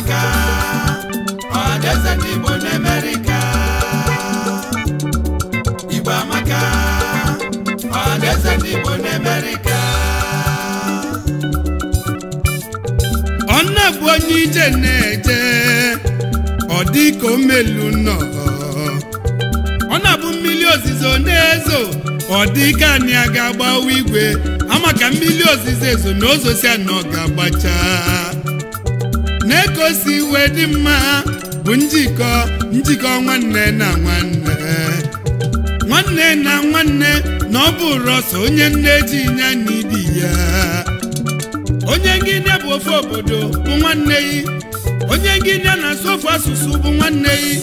aka ọdaeze ndị Igbo n'Amerika Igbo amaka ọdaeze ndị Igbo n'Amerika ọnna bụ onye ije na-eje ọ dị ka omelu nọ ọ na-abụ mmiri ozizo na-ezo ọ dị ka anyị aga agbawa igwe ama ka mmiri ozizo ezo na ozosi anọ ga-agbacha na iwe dị mma bụ njikọ njikọ nwanne na nwanne nwanne na nwanne na ọ bụrụ ọsọ onye nne ji nye n'idi ya onye ngịnịa bụ ofe obodo bụ nwanne yi onye ngịnịa na-asụ ofe asụsụ bụ nwanne yi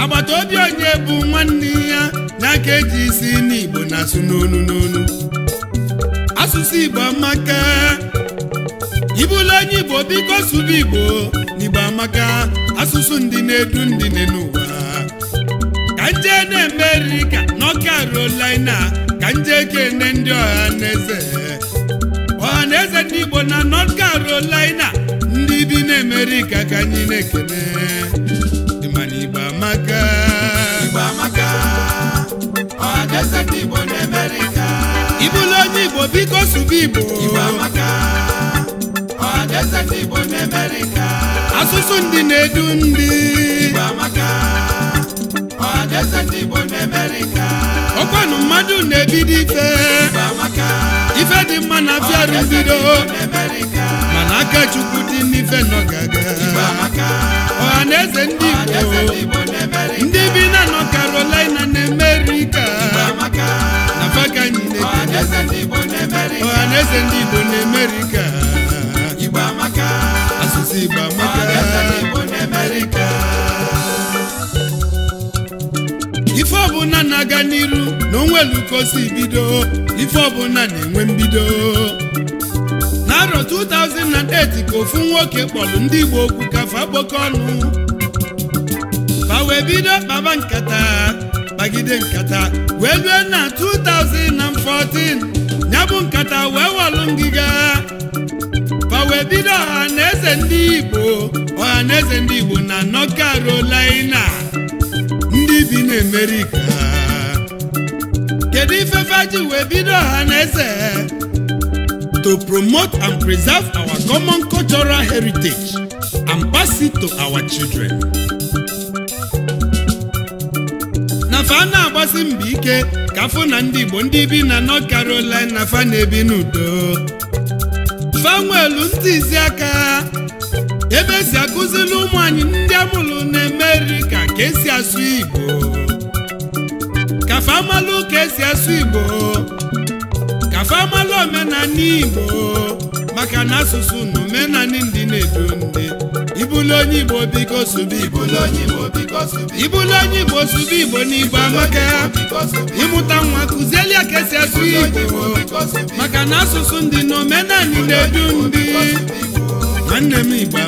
agbata obi onye bụ nwanne ya n'aka eji isi n'igbo na asụ n'onu n'onu asụsụ igbo amaka ibụlụ onye igbo biko sụba igbo n'igbo amaka asụsụ ndị na-edu ndị n'ụwa ka nje na-eme eriri ka n'ọka rolina ka nje kene ndị ọha naeze ọha naeze ndị igbo na north carolina ndị bi n'amerika ka anyị na-ekene mana igbo amaka igbo ọha na ndị igbo na amerika onye igbo biko sụba igbo igbo asụsụ ndị na-edu ndị ọkwanụ mmadụ na-ebido ife ife dị mma na afịarụ bido mana aka Chukwu dị n'ife nọ gaga ọha na eze ndị Igbo ndị bi na nọ Carolina na Amerịka na faka na-ebi ọha na eze ndị Igbo n'Amerịka igba ife ọbụla na-aga n'iru na onwelukosi bido ife ọbụla na-enwe mbido n'arọ 2008 ka ofu nwoke kpọrọ ndị Igbo okwu kafa kpọkọ ọnụ fa wee bido kpaba nkata bagide nkata wee lue na 2014 ya bụ nkata wee walụ ngịga o wee bido ọhaneze ndị igbo ọhaneze ndị igbo na North Carolina ndị bi n'Amerika kedu ifefe ji wee bido ọhaneze to promote and preserve our common cultural heritage and pass it to our children. na fa na-agbasi mbọ ike ka na ndị igbo ndị bi na North Carolina fa na-ebi n'udo fanwel ndị izi aka ebe esi akụzili ụmụ anyị ndị amụrụ na emeri ka ka esi asụ igbo ka famalụ ka esi asụ igbo ka famalụ omenala igbo maka na asụsụ na omenanị ndị na-edu ndị ibulu onye igbo biko sụba igbo ibulu onye igbo sụba igbo n'igbo amaka ịmụta nwa kụzieli ya ka esi asụ igbo maka na asụsụ ndị na omenanị na-edu ndị nwanne m igbo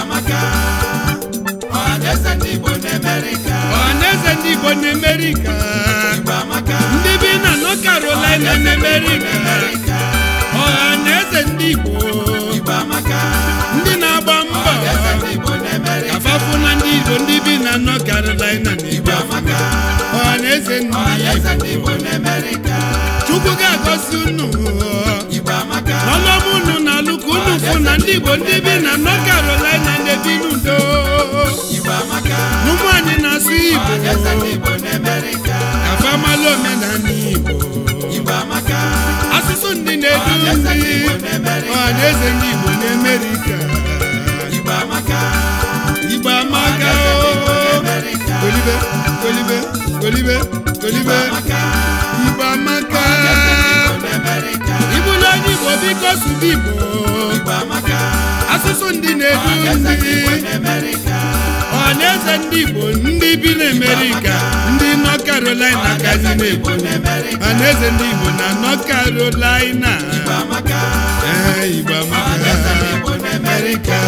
amaka ọhaneze ndị igbo na-emerika ndị bi na nọ Carolina na-emerika ọha na eze ndị Igbo ndị na-agba mbọ afafụ na ndị Igbo ndị bi na North Carolina na Igbo ọha na eze ndị Igbo Chukwu ga-agọzi unu n'ọnụọma unu na alụ ka unu fụ na ndị Igbo ndị bi na North Carolina na-ebi n'udo n'ụmụ anyị na-asụ Igbo afamalụ omenala Igbo ndị na-edu ndị eze ndị Igbo na Igbo amaka Igbo amaka oh, oh, oh. ibu n'onye Igbo biko sụba Igbo asụsụ ndị na-edu ọmarịcha ndị Igbo ndị bi n'Amerika ndị North Carolina gazi na na eze ndị Igbo na North Carolina Igbo amaka Amerika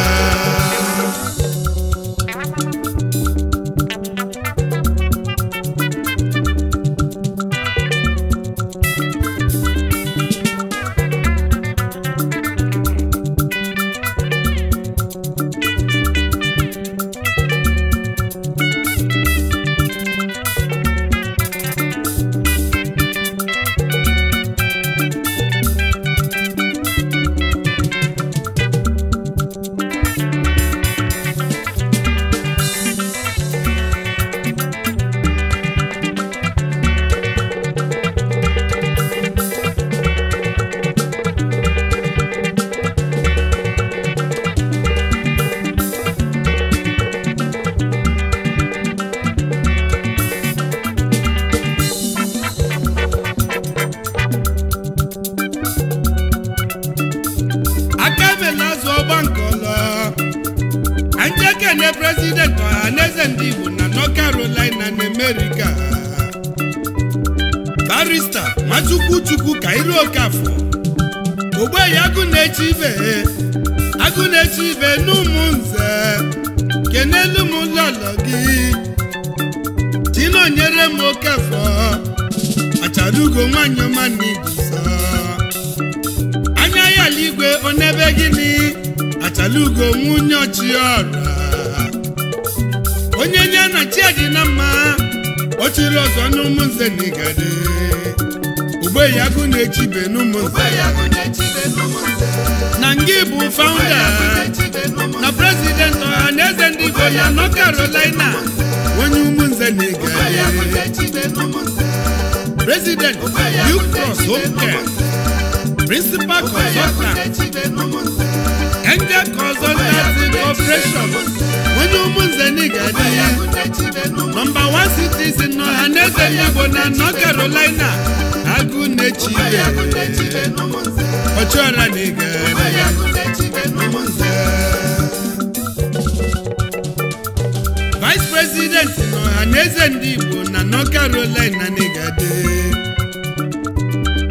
barista ma Chukwu Kairo Okafọ ogbeyi agụ na-eche ibe agụ na-eche ibe n'ụmụ nze kenelu m lọlọ gị nyere m Okafọ acharugo nwanyị ọma na ibuso anya ya eluigwe onebe gịnị achalugo nwunye ọchịọra onye nye na chi mma ochiri ọzọ n'ụmụnze na igade ugbe ya gụ na-echibe n'ụmụnze na ngị bụ faụnda na prezidenti ọha na eze ndị igbo ya nọ karolina onye ụmụnze na igade prezident ukros hoke principal Angel Consultancy Corporation onye ụmụnze na-egade ya nọmba 1 citizen n'ọha na igbo na North Carolina agụ na-echi ya ọchịọra na ya vice president n'ọha na ndị igbo na North Carolina na-egade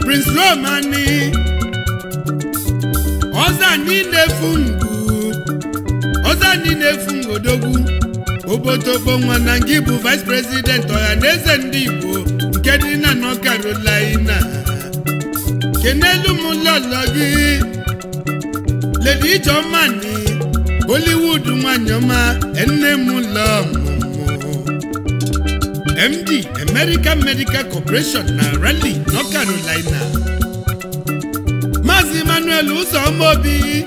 Prince Romani ọzọ niile na-efu ngwu ọzọ anyị na-efu nwa na ngị bụ vice president ọha na eze ndị igbo nke dị na nọ Carolina kenelu m lọlọ gị ijeọma nị bollywood nwanyị ọma m lọ MD American Medical Corporation na rally North Carolina Emmanuel Uzomobi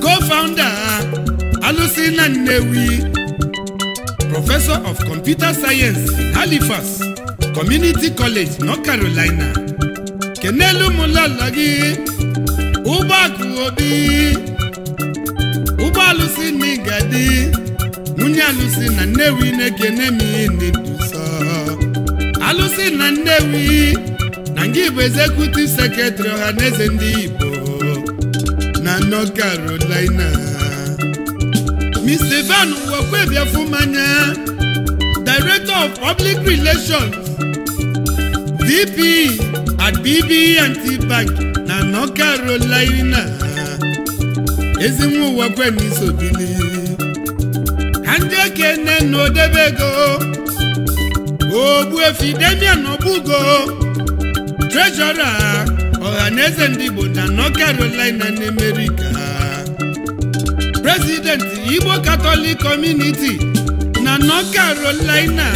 co-founder Alusi na Nnewi Professor of Computer Science Halifax Community College North Carolina kenelu mụlọlọ gị ụgbọakụ obi ụgbọ alụsị na ịgadi nwunye alụsị na Nnewi na-ekene m ihe ndị alụsị na Nnewi anyị bụ ezekutiv sekretrị ọha na eze ndị Igbo na North Carolina Mr. Van Nwokwebiafumanya Director of Public Relations VP at BB&T e Bank na North Carolina ezinwa uwekwe na isobili ha ndị ekene na odebe ego Efidemia, na Obugo trejọra ọhaneze ndị Igbo na North Carolina na America Presidenti Igbo Katọlik Community na North Carolina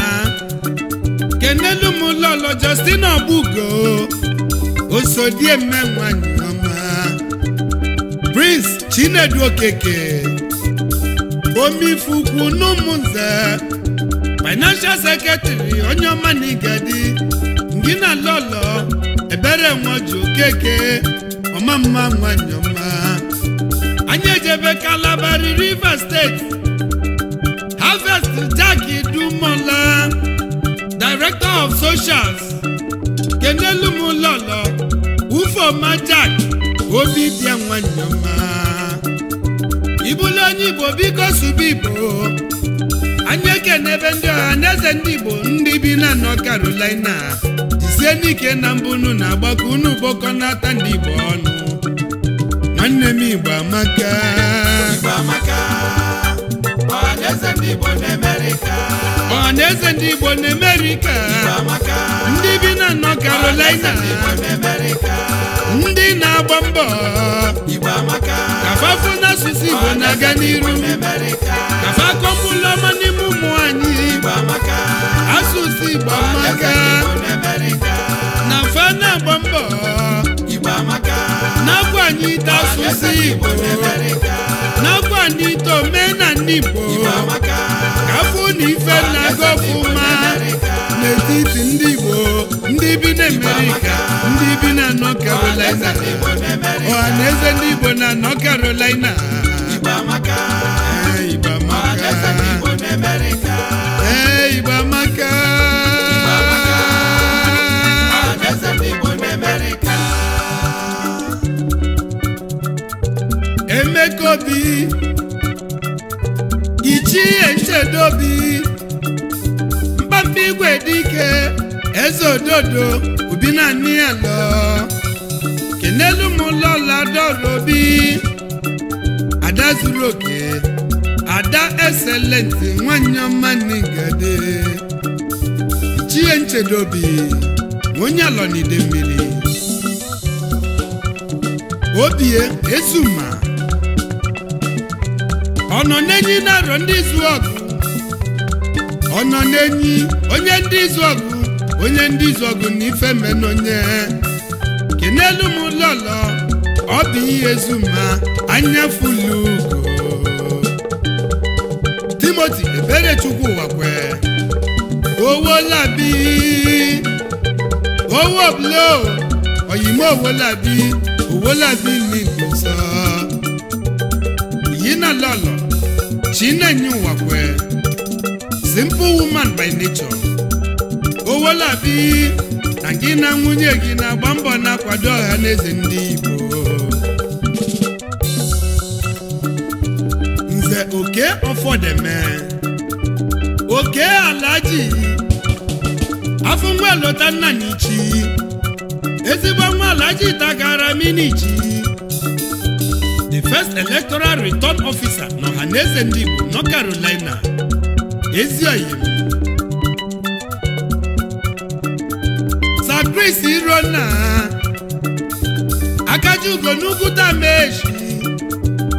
kenelu m lolo osodieme nwanyị ọma Prince Chinedu Okeke omifukwu n'ụmụnze Financial Secretary onye ọma na igadi ndị na lolo obere nwoju ọma mma nwanyọma anyị ejebe kalabari rivers steeti harvest jack dumola director of socials kenelumlolo ufoma jack obi bịa nwanyọma ibulu onye igbo biko subu igbo anyị ebe ndị ọha na eze ndị igbo ndị bi na nọ carolina sie n'ike na Mbunu na-agbakọ unu bọkọ n'ata ndị Igbo ọnụ nwanne m Igbo amaka na-eze ndị Igbo na Amerịka ndị bi na nọ karolina ndị na-agba mbọ kafafu n'asụsụ Igbo na-aga n'iru kafakọpụlọma n'ime ụmụ anyị asụsụ Igbo amaka na ite asụsụ Igbo n'ọkwa ndị omenala Igbo kafụ na ife na gọfụma n'etiti ndị Igbo ndị bi na Amerịka ndị bi na nọ Carolina ọha na eze ndị Igbo na North Carolina Igbo amaka Nchekobi Ichie Nchedobi Mkpapi igwe dike Eze ododo ubi naanị ya lọ kenelu m ụlọla dọrobi ada zuru oke ada eselenti nwanyị ọma n'igade chie nchedobi onye alọnide mmiri obie ezuma ọ nọ n'enyi narọ ndị izu ọgụ ọ n'enyi onye ndị izu ọgụ onye ndị izu ọgụ na ife menonye kenelu m lọlọ ọ bụ ihe ma anya fulu Timoti chukwu wakwe owó làbí owó blo ọ̀yìnbó owó owolabi owó làbí ní chinenye ụwa kwee simple woman by nature owolabi na gị na nwunye gị na-agba mbọ na-akwado ọha na eze ndị Igbo nze oke ọfọdeme oke alaji afọ nwa lọta nna n'ichi ezigbo nwa alaji tagara minichi the first electoral return officer ọhaneze ndị Igbo nọ Carolina Ezioyi Sir Chris Irona Akajiugo n'ugwu dameji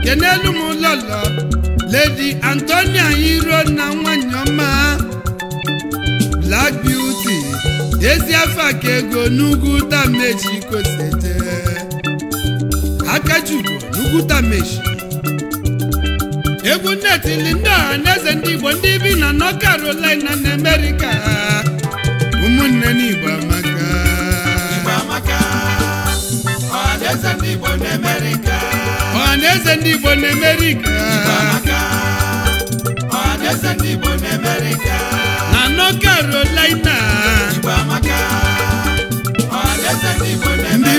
kenelu m lọlọ Lady Antonia Irona nwanyị ọma Black Beauty ezi afọ aka ego n'ugwu dameji kosete Akajiugo n'ugwu dameji egwu nnetili ndị a na eze ndị igbo ndị bi na nọ Carolina na America ụmụnne n'igbo amaka ọha ndị igbo na America na na na ndị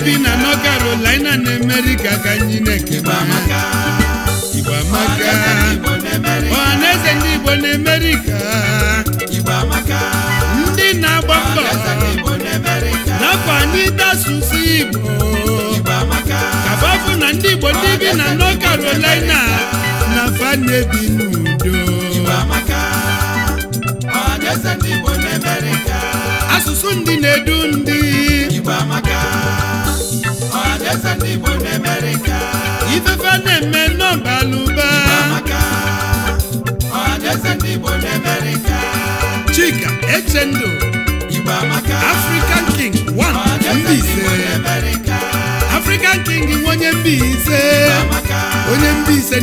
bi na nọ Carolina na America ka anyị na ka ọhaneze ndị Igbo na ndị na-agba mbọ n'afọ anyị asụsụ Igbo kababụ na ndị Igbo ndị bi na North karolina na fa na-ebi n'udo asụsụ ndị na-edu ndị ifefe na-eme n'ọbalụba ndị Chika Echendo Igbo African King 1 King onye onye Mbaise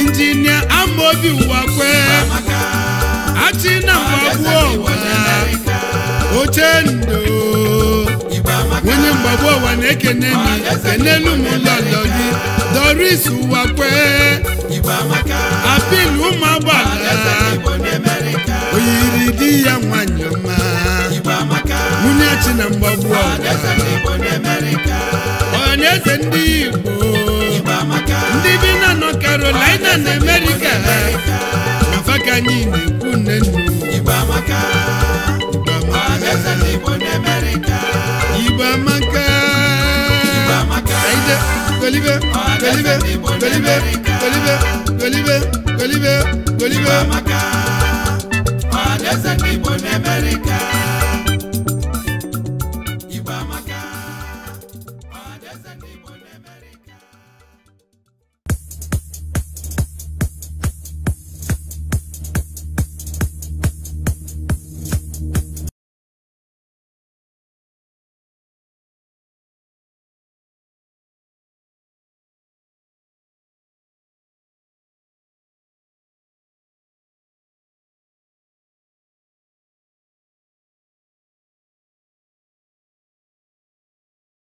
Injinia Amobi Uwakwe Achina Mwagwọ Ochendo onye mgbagbu ụwa na-ekene kenelu ụmụlọlọ gị doris ụwa kwee apil ụmụ agbala oyiri di ya nwanyị ọma nwunye chi na mgbagbu ụwa ọnyaeze ndị igbo ndị bi nọ karolina na amerịka mfa ka anyị na-ekwu nne Igbo amaka aide golibe golibe golibe Kolibe! Kolibe! Kolibe! golibe ọdaeze ndị Igbo n'Amerika